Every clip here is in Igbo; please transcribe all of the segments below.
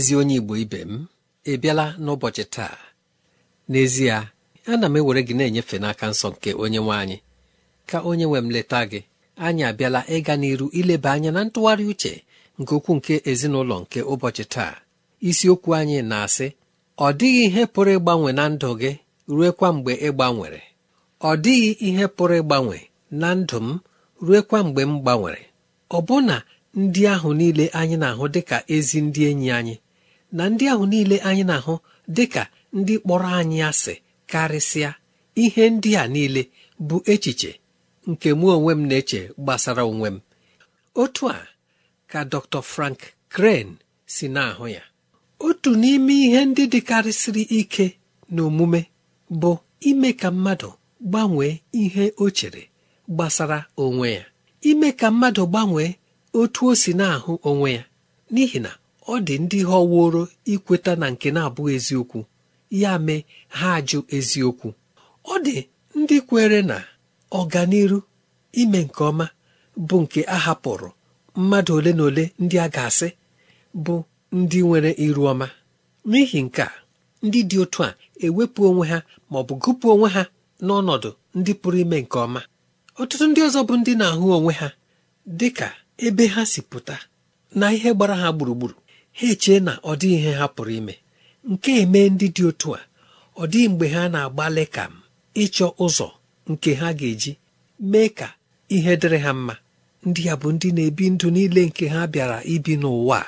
ezi onye igbo ibe m ị bịala n'ụbọchị taa n'ezie ana m ewere gị na-enyefe n'aka nsọ nke onye nwe anyị ka onye nwe m leta gị anyị abịala ịga n'iru ileba anya na ntụgharị uche nke ukwuu nke ezinụlọ nke ụbọchị taa isiokwu anyị na-asị ọ dịghị ihe pụrụ ịgbanwe na ndụ gị ruekwa mgbe ị gbanwere ọ dịghị ihe pụrụ ịgbanwe na ndụ m ruekwa mgbe m gbanwere ọbụna ndị ahụ niile anyị na-ahụ dịka ezi ndị enyi anyị na ndị ahụ niile anyị na-ahụ dị ka ndị kpọrọ anyị asị karịsịa ihe ndị a niile bụ echiche nke mụ onwe m na-eche gbasara onwe m otu a ka Dr. Frank Crane si na-ahụ ya otu n'ime ihe ndị dịkarịsịrị ike na omume bụ ime ka mmadụ gbanwee ihe o chere gbasara onwe ya ime ka mmadụ gbanwee otu o si na-ahụ onwe ya n'ihi na ọ dị ndị họworo ikweta na nke na-abụghị eziokwu ya mee ha ajụ eziokwu ọ dị ndị kwere na ọganiru ime nke ọma bụ nke a hapụrụ mmadụ ole na ole ndị a ga-asị bụ ndị nwere iru ọma n'ihi nke a ndị dị otu a ewepụ onwe ha ma ọ bụ gụpụ onwe ha n'ọnọdụ ndị pụrụ ime nke ọma ọtụtụ ndị ọzọ bụ ndị na-ahụ onwe ha dị ka ebe ha si pụta na ihe gbara ha gburugburu ha echee na ọ dị ihe ha pụrụ ime nke eme ndị dị otu a ọ dị mgbe ha na-agbalị ka m ịchọ ụzọ nke ha ga-eji mee ka ihe dịrị ha mma ndị a bụ ndị na-ebi ndụ niile nke ha bịara ibi n'ụwa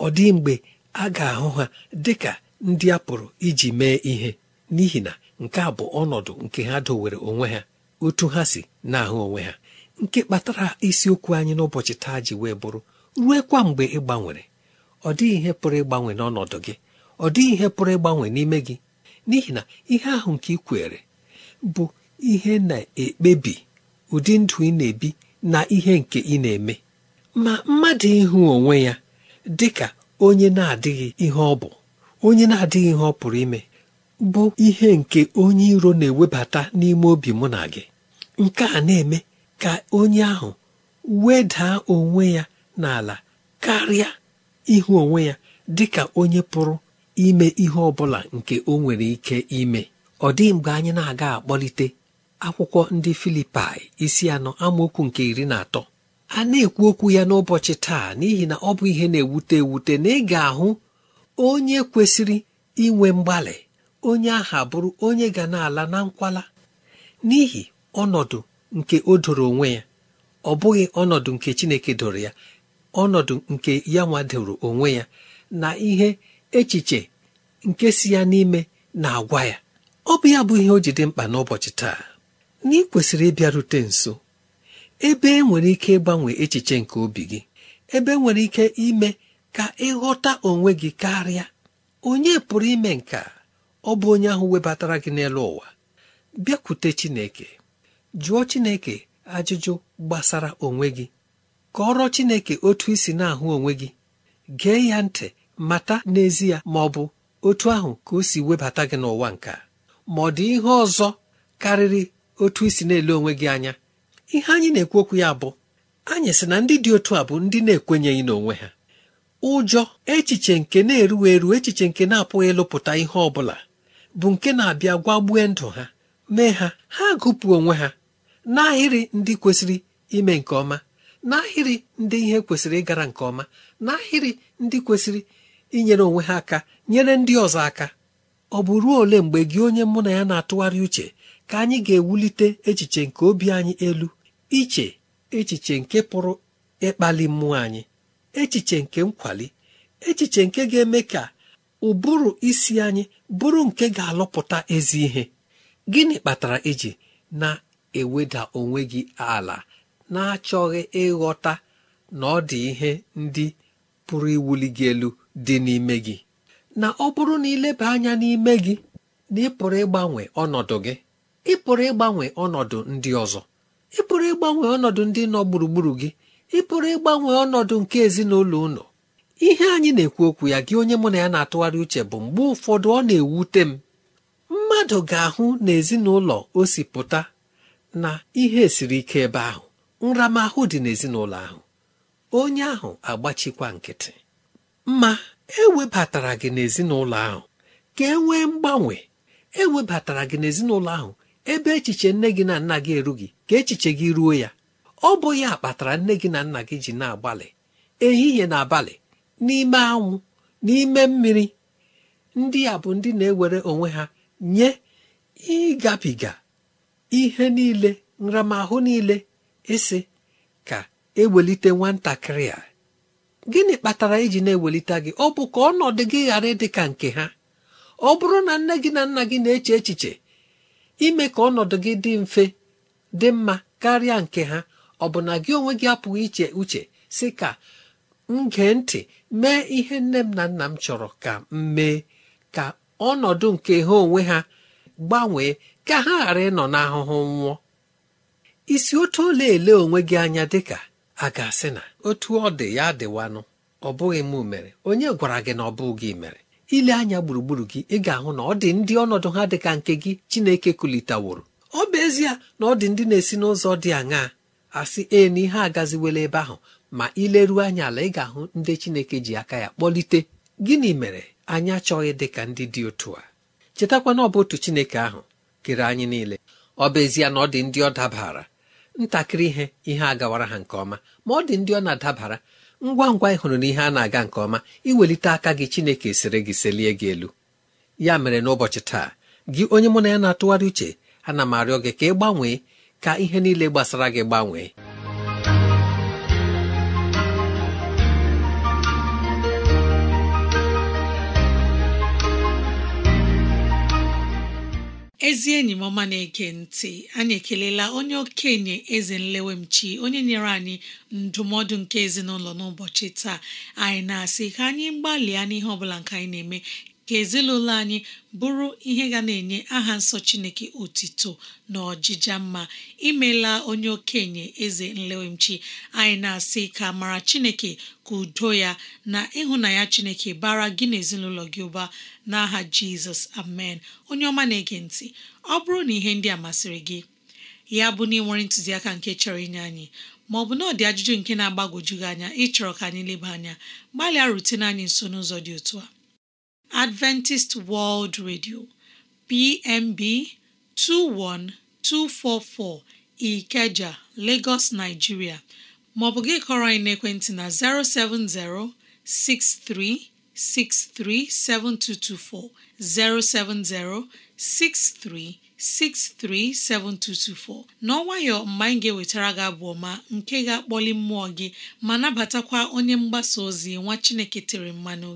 ọ dị mgbe a ga-ahụ ha dị ka ndị a pụrụ iji mee ihe n'ihi na nke a bụ ọnọdụ nke ha dowere onwe ha otu ha si na-ahụ onwe ha nke kpatara isiokwu anyị n'ụbọchị taa ji wee bụrụ kwa mgbe ị gbanwere ọ dịghị ihe pụrụ ịgbanwe n'ọnọdụ gị ọ dịghị ihe pụrụ ịgbanwe n'ime gị n'ihi na ihe ahụ nke ị kwere bụ ihe na-ekpebi ụdị ndụ ị na-ebi na ihe nke ị na-eme ma mmadụ ịhụ onwe ya dị ka onye na-adịghị ihe ọ bụ onye na-adịghị ihe ọ pụrụ ime bụ ihe nke onye iro na-ewebata n'ime obi mụ na gị nke a na-eme ka onye ahụ wedaa onwe ya n'ala karịa ihu onwe ya dị ka onye pụrụ ime ihe ọ bụla nke o nwere ike ime ọ dịghị mgbe anyị na-aga akpọlite akwụkwọ ndị filipi isi anọ amaokwu nke iri na atọ a na-ekwu okwu ya n'ụbọchị taa n'ihi na ọ bụ ihe na-ewute ewute na ị ga-ahụ onye kwesịrị inwe mgbalị onye aha bụrụ onye ga na-ala na nkwala n'ihi ọnọdụ nke o doro onwe ya ọ bụghị ọnọdụ nke Chineke doro ya ọnọdụ nke ya nwadoro onwe ya na ihe echiche nke si ya n'ime na-agwa ya ọ bụ ya bụ ihe o ji dị mkpa n'ụbọchị taa na ị kwesịrị ịbịarute nso ebe e nwere ike ịgbanwe echiche nke obi gị ebe e nwere ike ime ka ịghọta onwe gị karịa onye pụrụ ime nka ọ bụ onye ahụ webatara gị n'elu ụwa bịakwute Chineke jụọ Chineke ajụjụ gbasara onwe gị kọrọ chineke otu isi na-ahụ onwe gị gee ya ntị mata n'ezie ma ọ bụ otu ahụ ka o si webata gị n'ụwa nka ma ọ dị ihe ọzọ karịrị otu isi na-ele onwe gị anya ihe anyị na-ekwu okwu ya bụ anyị sị na ndị dị otu a bụ ndị na-ekwenyeghị n'onwe ha ụjọ echiche nke na-erughị eru echiche nke na-apụghị ịlụpụta ihe ọ bụla bụ nke na-abịa gwagbue ndụ ha mee ha ha gụpụ onwe ha n'ahịrị ndị kwesịrị ime nke ọma n'ahịrị ndị ihe kwesịrị ịgara nke ọma n'ahịrị ndị kwesịrị inyere onwe ha aka nyere ndị ọzọ aka ọ bụ ruo ole mgbe gị onye mụ na ya na-atụgharị uche ka anyị ga-ewulite echiche nke obi anyị elu iche echiche nke pụrụ ịkpali mmụọ anyị echiche nke nkwali echiche nke ga-eme ka ụbụrụ isi anyị bụrụ nke ga-alụpụta ezi ihe gịnị kpatara iji na-eweda onwe gị ala na-achọghị ịghọta na ọ dị ihe ndị pụrụ iwuli gị elu dị n'ime gị na ọ bụrụ na ileba anya n'ime gị na ị pụrụ ịgbanwe ọnọdụ gị ị pụrụ ịgbanwe ọnọdụ ndị ọzọ ị pụrụ ịgbanwe ọnọdụ ndị nọ gburugburu gị ị pụrụ ịgbanwe ọnọdụ nke ezinụlọ ụlọ ihe anyị na-ekwu okwu ya gị onye mụ na ya na-atụgharị uche bụ mgbe ụfọdụ ọ na-ewute m mmadụ ga-ahụ na ezinụlọ o si pụta na ihe siri ike ebe ahụ nramahụ dị n'ezinụlọ ahụ onye ahụ agbachikwa nkịtị ma e webatara gị n'ezinụlọ ahụ ka e nwee mgbanwe e webatara gị n'ezinụlọ ahụ ebe echiche nne gị na nna gị erughị ka echiche gị ruo ya ọ bụ ya kpatara nne gị na nna gị ji na-agbalị ehihie na abalị n'ime anwụ n'ime mmiri ndị a bụ ndị na-ewere onwe ha nye ịgabiga ihe niile nramahụ niile ịsị ka ewelite nwatakịrị a gịnị kpatara iji na-ewelite gị ọ bụ ka ọnọdụ gị ghara ịdị ka nke ha ọ bụrụ na nne gị na nna gị na-eche echiche ime ka ọnọdụ gị dị mfe dị mma karịa nke ha ọ bụ na gị onwe gị apụghị iche uche si ka m gee ntị mee ihe nne m na nna m chọrọ ka m mee ka ọnọdụ nke ha onwe ha gbanwee ka ha ghara ịnọ n'ahụhụ nwụọ isi otu ole ele onwe gị anya dịka a ga-asị na otu ọ dị ya dịwanụ ọ bụghị m mere onye gwara gị na ọ bụ gị mere ile anya gburugburu gị ị ga-ahụ na ọ dị ndị ọnọdụ ha dịka nke gị Chineke kulitaworo ọ bụ ezie na ọ dị ndị na-esi n'ụzọ dị aṅaa asị ee na ihe agaziwela ebe ahụ ma ileruo anya ala ị ga-ahụ ndị Chineke ji aka ya kpọlite gịnị mere anyị achọghị dị ka ndị dị otu a chetakwana na ọ bụ otu Chineke ahụ kere anyị niile ọ bụ ezie na ọ dị ndị ọ dabara ntakịrị ihe ihe a gawara ha nke ọma ma ọ dị ndị ọ na-adabara ngwa ngwa ị hụrụ ihe a na-aga nke ọma iwelite aka gị chineke sịrị gị selie gị elu ya mere n'ụbọchị taa gị onye mụ na ya na-atụgharị uche ana m arịọ gị ka ị gbanwee ka ihe niile gbasara gị gbanwee ezi enyi m ọma na-ege ntị anyị ekelela onye okenye eze nlewemchi onye nyere anyị ndụmọdụ nke ezinụlọ n'ụbọchị taa anyị na-asị ka anyị gbalịa n'ihe ọbụla nke anyị na-eme ka ezinụlọ anyị bụrụ ihe ga na-enye aha nsọ Chineke otito na ọjịja mma imela onye okenye eze nlewemchi anyị na-asị ka mara Chineke ka udo ya na ịhụnanya Chineke bara gị na ezinụlọ gị ụba n'aha Jizọs amen onye ọma na-ege ntị ọ bụrụ na ihe ndị a masịrị gị ya bụ na ị nwere ntụziaka nke chọrọ inye anyị ma ọ bụ na ọ dị ajụjụ nke na agbagojugị anya ịchọrọ ka anyị leba anya gbalịa rutena anyị nso n'ụzọ dị otu a Adventist World Radio PMB 21244 Ikeja, Lagos, Nigeria maọbụ gị kọrọ anyị naekwentị na 070 6363 7224 070 6363 7224 mgbe anyị ga-ewetara gị abụọ ma nke ga-akpọli mmụọ gị ma nabatakwa onye mgbasa ozi nwa Chineke tere mmanụ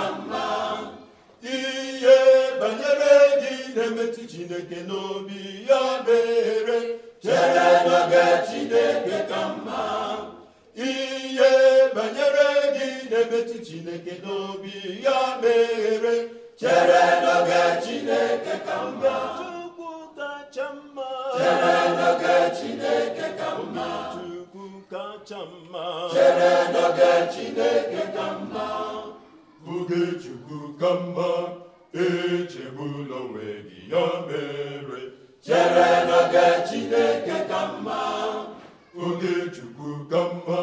mara mma ihe banyere gị na-emetụ chineke n'obi ya bere, chere n'oge chineke ka mma ihe banyere gị na-emetụ chineke n'obi ya mere chere n'oge chineke ka mma chere n'oge chineke ka mma chere n'oge chineke ka mma Ogechukwu ka mma echegbula onwe gị ya mere chere n'oge Chineke ka mma Ogechukwu ka mma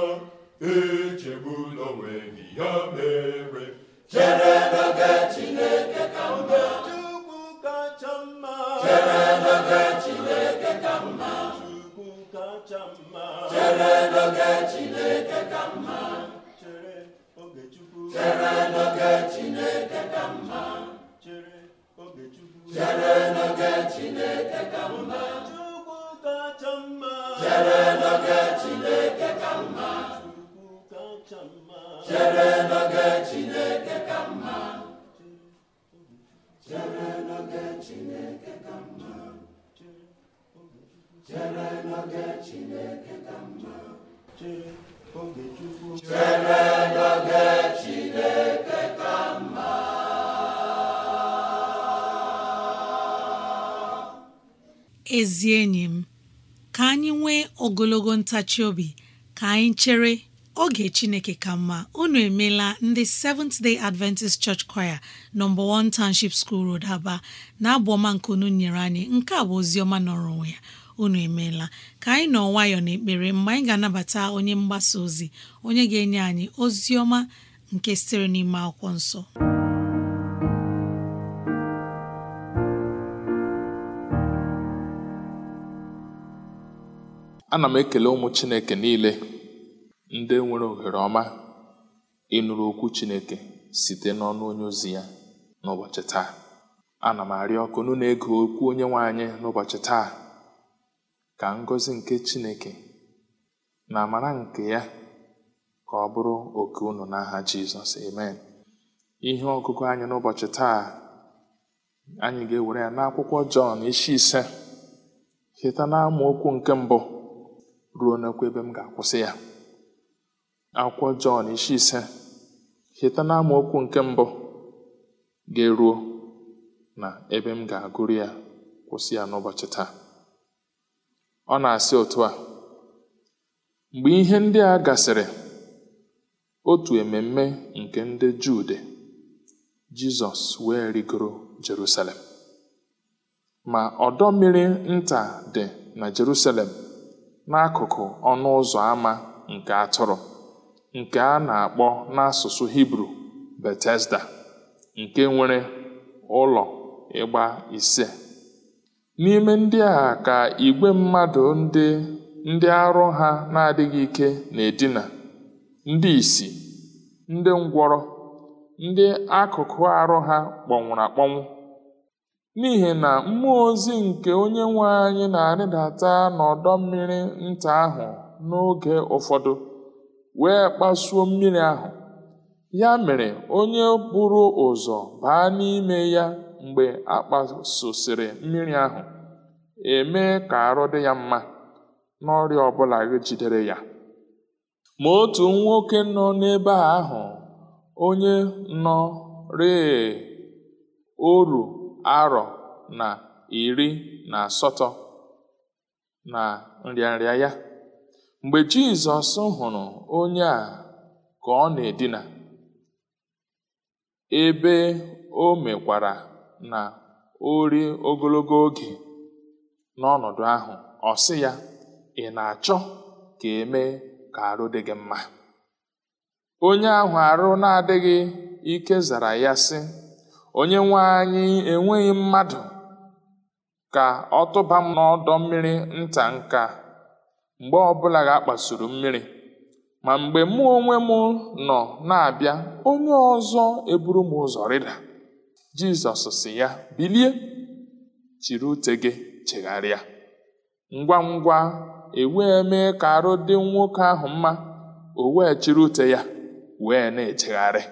echegbula onwe gị ya mere chere n'oge Chineke ka mma Chukwu kacha mma chere n'oge Chineke ka mma Chukwu kacha mma chere n'oge Chineke ka mma chere n'oge Chineke ka mma chere n'oge Chineke ka mma chere n'oge Chineke ka mma ezi enyi m ka anyị nwee ogologo ntachi obi ka anyị chere oge chineke ka mma unu emeela ndị Seventh Day Adventist Church Choir nọmba 1 Township School Road Aba na-abụ ọma nke unu nyere anyị nke a bụ ozioma nọrọ onwe ya unu emeela ka anyị nọ nwayọọ ekpere mgbe anyị ga-anabata onye mgbasa ozi onye ga-enye anyị ozi nke sitere n'ime akwụkwọ nsọ ana m ekele ụmụ chineke niile ndị nwere ohere ọma ịnụrụ okwu Chineke site n'ọnụ onye ozi ya n'ụbọchị taa ana m arịọ ọkụ na ego okwu onye nwe anyị n'ụbọchị taa ka ngọzi nke Chineke na amara nke ya ka ọ bụrụ oke unu n'aha Jizọs amen ihe ọgụgụ anyị n'ụbọchị taa anyị ga-ewere ya n'akwụkwọ Jọn isi ise cheta na amaokwu nke mbụ ruo n'okwu ebe m ga-akwụsị ya akwụkwọ Jọn isi ise cheta na amaokwu nke mbụ ga-eruo na ebe m ga-agụrụ ya kwụsị ya n'ụbọchị taa ọ na-asị otu a mgbe ihe ndị a gasịrị otu ememme nke ndị Juu dị Jizọs wee rigoro Jerusalem ma ọdọ mmiri nta dị na Jerusalem n'akụkụ ọnụ ụzọ ámá nke atụrụ nke a na-akpọ n'asụsụ Hibru Betesda nke nwere ụlọ ịgba ise. N'ime ndị a ka igwe mmadụ ndị ndị arụ ha na-adịghị ike na-edina, ndị isi, ndị ngwọrọ, ndị akụkụ arụ ha kpọnwụrụ akpọnwụ. N'ihi na mmụọ ozi nke onye nwe anyị na-arịdata n'ọdọ mmiri nta ahụ n'oge ụfọdụ wee kpasuo mmiri ahụ ya mere onye buru ụzọ baa n'ime ya mgbe a mmiri ahụ emee ka arụ dị ya mma n'ọrịa ọbụla jidere ya ma otu nwoke nọ n'ebe ahụ onye nọ rịị oru arọ na iri na asatọ na nrịanrịa ya Mgbe Jizọs hụrụ onye a ka ọ na-edina, ebe o mekwara na o ogologo oge n'ọnọdụ ahụ, ọ sị ya, ị na-achọ ka eme mee ka arụ dị gị mma? Onye ahụ arụ na-adịghị ike zara ya sị, 'Onye nwe anyị, enweghị mmadụ ka ọ tụba m n'ọdọ mmiri nta nke mgbe ọbụla ga-akpasuru mmiri ma mgbe mụ onwe m nọ na-abịa onye ọzọ eburu m ụzọ rịda Jizọs si ya bilie chiri ute gị chegharịa ngwa ngwa ewee mee ka arụ dị nwoke ahụ mma o wee chiri ute ya wee na echegharị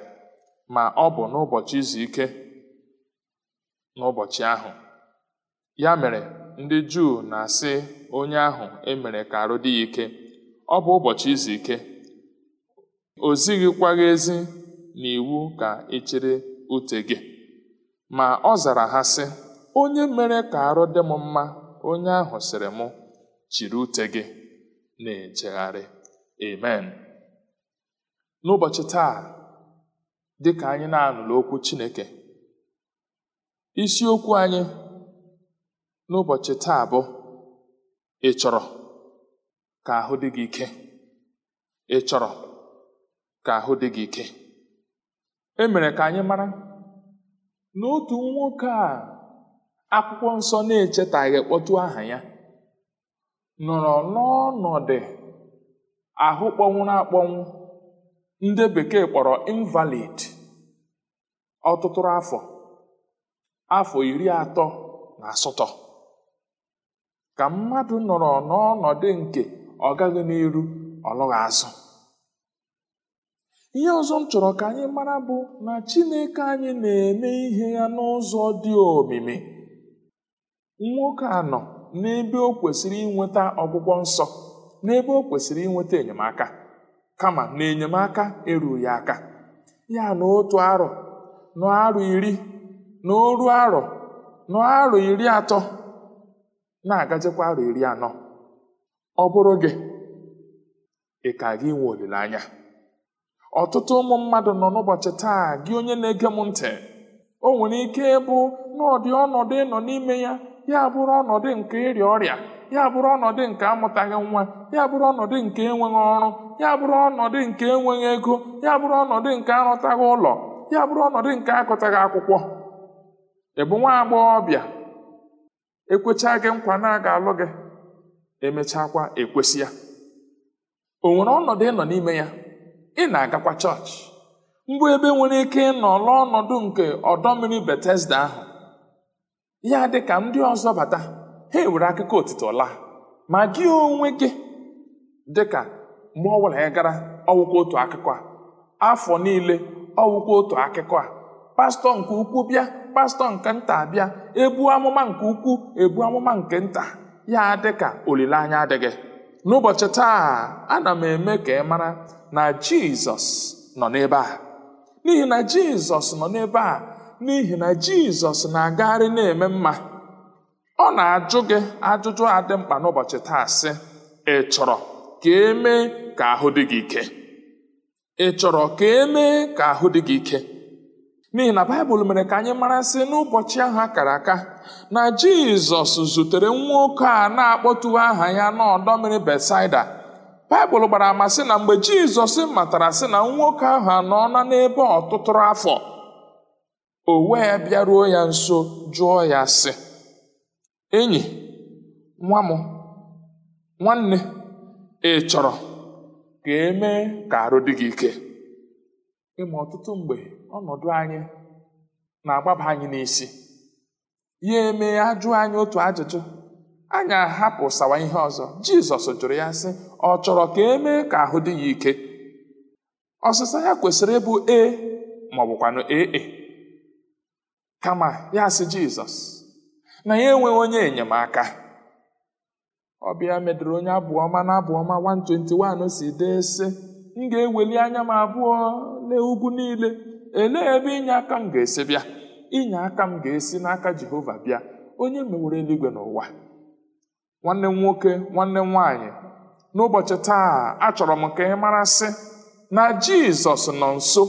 ma ọ bụ n'ụbọchị izu ike n'ụbọchị ahụ ya mere ndị Juu na-asị onye ahụ emere ka arụ dị ya ike ọ bụ ụbọchị izu ike o zighịkwaghị ezi na iwu ka ị e chịrị ute gị ma ọ zara ha sị onye mere ka arụ dị m mma onye ahụ sịrị mụ chịrị ute gị na-ejegharị amen n'ụbọchị taa dị ka anyị na-anụrụ okwu Chineke isiokwu anyị n'ụbọchị taa bụ ị chọrọ ka ahụ dị gị ike ị chọrọ ka ahụ dị gị ike e mere ka anyị mara na otu nwoke a akwụkwọ nsọ na-echetaghị kpọtụ aha ya nọrọ n'ọnọdụ ahụ kpọnwụrụ akpọnwụ ndị bekee kpọrọ invalid ọtụtụ afọ afọ iri atọ na asatọ ka mmadụ nọrọ n'ọnọdụ nke ọ gaghị n'iru ọ azụ ihe ọzọ m chọrọ ka anyị mara bụ na Chineke anyị na-eme ihe ya n'ụzọ dị omimi nwoke anọ n'ebe o kwesịrị inweta ọgwụgwọ nsọ n'ebe o kwesịrị inweta enyemaka kama na enyemaka erughị aka ya na otu arọ n'arọ iri na arọ n'arọ iri atọ na-agazikwa arụ iri anọ ọ bụrụ gị ị ka gị nwe olileanya ọtụtụ ụmụ mmadụ nọ n'ụbọchị taa gị onye na-ege m ntị o nwere ike ịbụ n'ọdị ọnọdụ ịnọ n'ime ya ya bụrụ ọnọdụ nke ịrịa ọrịa ya bụrụ ọnọdụ nke amụtaghị nwa ya bụrụ ọnọdụ nke enweghị ọrụ ya bụrụ ọnọdụ nke enweghị ego ya bụrụ ọnọdụ nke arụtaghị ụlọ ya bụrụ ọnọdụ nke akụtaghị akwụkwọ ị bụ nwa agbọghọbịa ekwechaa gị nkwa na a ga-alụ gị emechakwa ekwesị ya o nwere ọnọdụ ịnọ n'ime ya ị na-agakwa chọọchị mbụ ebe nwere ike ịnọ ọnọdụ nke ọdọ mmiri Betesda ahụ ya dị ka ndị ọzọ bata ha ewere akụkọ otito laa ma gị onwe gị dị ka mgbe ọ ya gara ọwụkwa otu akụkọ a afọ niile ọwụkwa otu akụkọ a pastọ nke ukwu bịa pastọ nke nta bịa ebu amụma nke ukwuu, ebu amụma nke nta ya adị ka olileanya adịghị n'ụbọchị taa ana m eme ka ị mara na jizọs nọ n'ebe a n'ihi na jizọs nọ n'ebe a n'ihi na jizọs na-agagharị na-eme mma ọ na-ajụ gị ajụjụ adị mkpa n'ụbọchị taa sị ị chọrọ ka e ka ahụ dị gị ike n'ihi na baịbụl mere ka anyị mara sị n'ụbọchị ahụ a kara aka na jizọs zutere nwa a na-akpọtuwe aha ya n'ọdọ mmiri betsaida baịbụl gbara ama na mgbe jizọs matara sị na nwoke ahụ na n'ebe ọtụtụrụ afọ o wee bịaruo ya nso jụọ ya sị enyi nwa nwanne ị chọrọ ka emee ka arụ dị gị ike ịma ọtụtụ mgbe ọnọdụ anyị na-agbaba anyị n'isi ya eme ajụ anyị otu ajụjụ anyị ahapụ sawa ihe ọzọ jizọs jụrụ ya sị ọ chọrọ ka e mee ka ahụ dị ya ike ọsịsa ya kwesịrị ịbụ e ma ọ bụkwanụ ee e. kama ya sị jizọs na ya enweghị onye enyemaka ọbịa medụrụ onye abụọma na abụọma 121 si dee sị m ga-eweli anya m abụọ lee ugwu niile elee ebe inye aka m ga-esi bịa inye aka m ga-esi n'aka jehova bịa onye mewere eluigwe n'ụwa nwanne m nwoke nwanne m nwaanyị n'ụbọchị taa achọrọ m ka ị marasị na jizọs nọ nso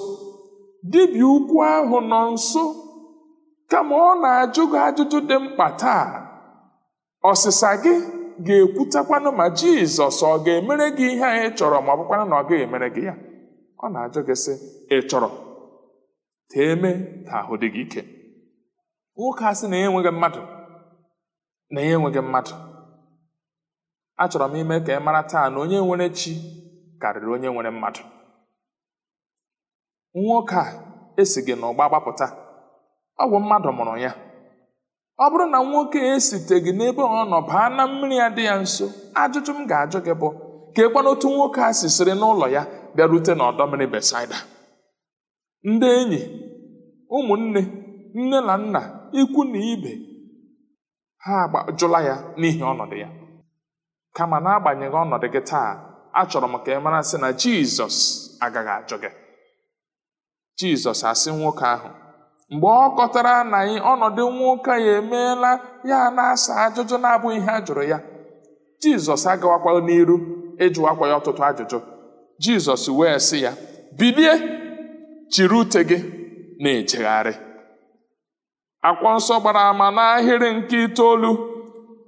dibịa ukwu ahụ nọ nso kama ọ na-ajụ ajụjụ dị mkpa taa ọsịsa gị ga ekwutakwanụ ma jizọs ọ ga-emere gị ihe anyị chọrọ ma ọ bụkwanụ na ọ gaghị emere gị ya ọ na-ajụ gị sị ị chọrọ eme ka ahụ dị gị ike nwoke a sị na enweghị mmadụ na ya enweghị mmadụ achọrọ m ime ka ị mara taa na onye nwere chi karịrị onye nwere mmadụ nwoke a esi gị n'ụgba gbapụta ọ bụ mmadụ mụrụ ya ọ bụrụ na nwoke gị n'ebe ọ nọ baa na mmiri ya dị ya nso ajụjụ m ga-ajụ gị bụ ka ekwana otu nwoke a sisiri n'ụlọ ya bịarute n'ọdọ mmiri Besaida ndị enyi ụmụnne nne na nna ikwu na ibe ha jụla ya n'ihi ọnọdụ ya kama na-agbanyeghị ọnọdụ gị taa achọrọ m ka ị mara sị na Jizọs agaghị ajụ gị Jizọs asị nwoke ahụ mgbe ọ kọtara na ọnọdụ nwoke ya emeela ya na-asa ajụjụ na-abụghị ihe a jụrụ ya jizọs agawakwa n'iru ịjụwakwa ya ọtụtụ ajụjụ jizọs wee sị ya bilie chiri ute gị na-ejegharị akwọ nsọ gbara ama n'ahịrị nke itoolu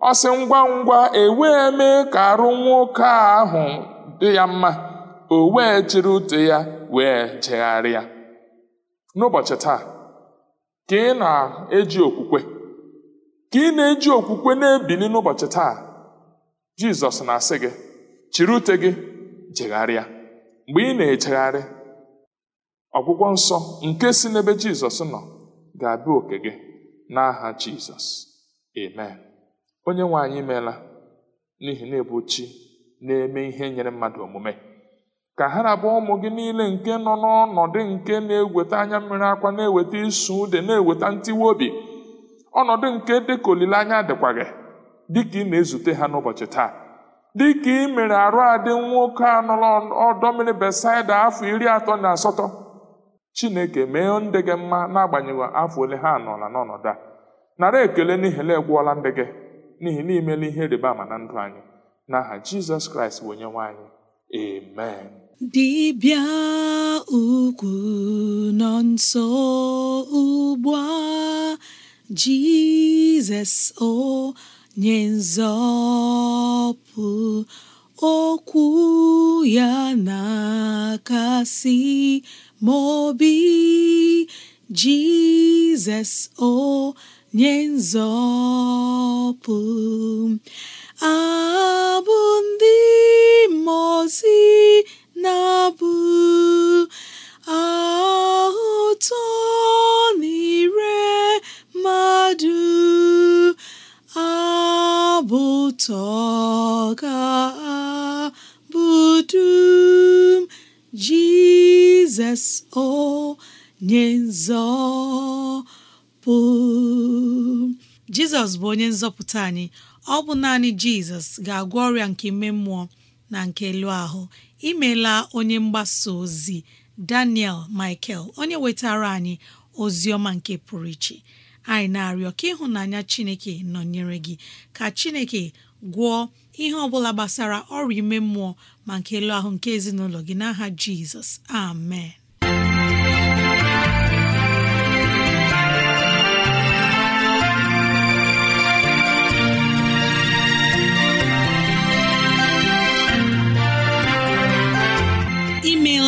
ọ sị ngwa ngwa ewee mee ka arụ nwoke ahụ dị ya mma o wee chiri ute ya wee jegharịa n'ụbọchị taa ka ị na-eji okwukwe ka ị na-eji okwukwe na-ebili n'ụbọchị taa jizọs na-asị gị chiri ute gị jegharịa mgbe ị na-ejegharị ọgwụgwọ nsọ nke si n'ebe jizọs nọ ga-abịa oke gị n'aha jizọs amen onye nwe anyị meela n'ihi na ebuchi na-eme ihe nyere mmadụ omume ka ha na-abụ ụmụ gị niile nke nọ n'ọnọdụ nke na-eweta anya mmiri akwa na-eweta isu ude na-eweta ntiwe obi ọnọdụ nke dịka olileanya dịkwa gị dịka ị na-ezute ha n'ụbọchị taa dịka ị mere arụ adị nwoke a nọrọ ọdọ mmiri Besaida afọ iri atọ na asatọ Chineke mee ndị gị mma n'agbanyeghị afọ ole ha nọla n'ọnọdụ a nara ekele n'ihi na egwuola ndị gị n'ihi na imela ihe rịba ama na ndụ anyị n'aha Jizọs Kraịst bụ onye nwe anyị amen dibịa ukwu nọ nso ugbu a Jizọs onye nzọpụ okwu ya na-akasi mobi Jizọs onye nzọpụ abụ ndị mmụọ na-abụ atọ na ire mmadụ abụ ga dum Jizọs onye nzọpụ Jizọs bụ onye nzọpụta anyị ọ bụ naanị Jizọs ga-agwọ ọrịa nke ime mmụọ na nke elu ahụ imela onye mgbasa ozi Daniel Michael onye wetara anyị ozi ọma nke pụrụ iche anyị na-arịọ ka ịhụnanya Chineke nọnyere gị ka Chineke gwọọ ihe ọbụla gbasara ọrịa ime mmụọ ma nke elu ahụ nke ezinụlọ gị n'aha Jizọs amen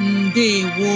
ndewo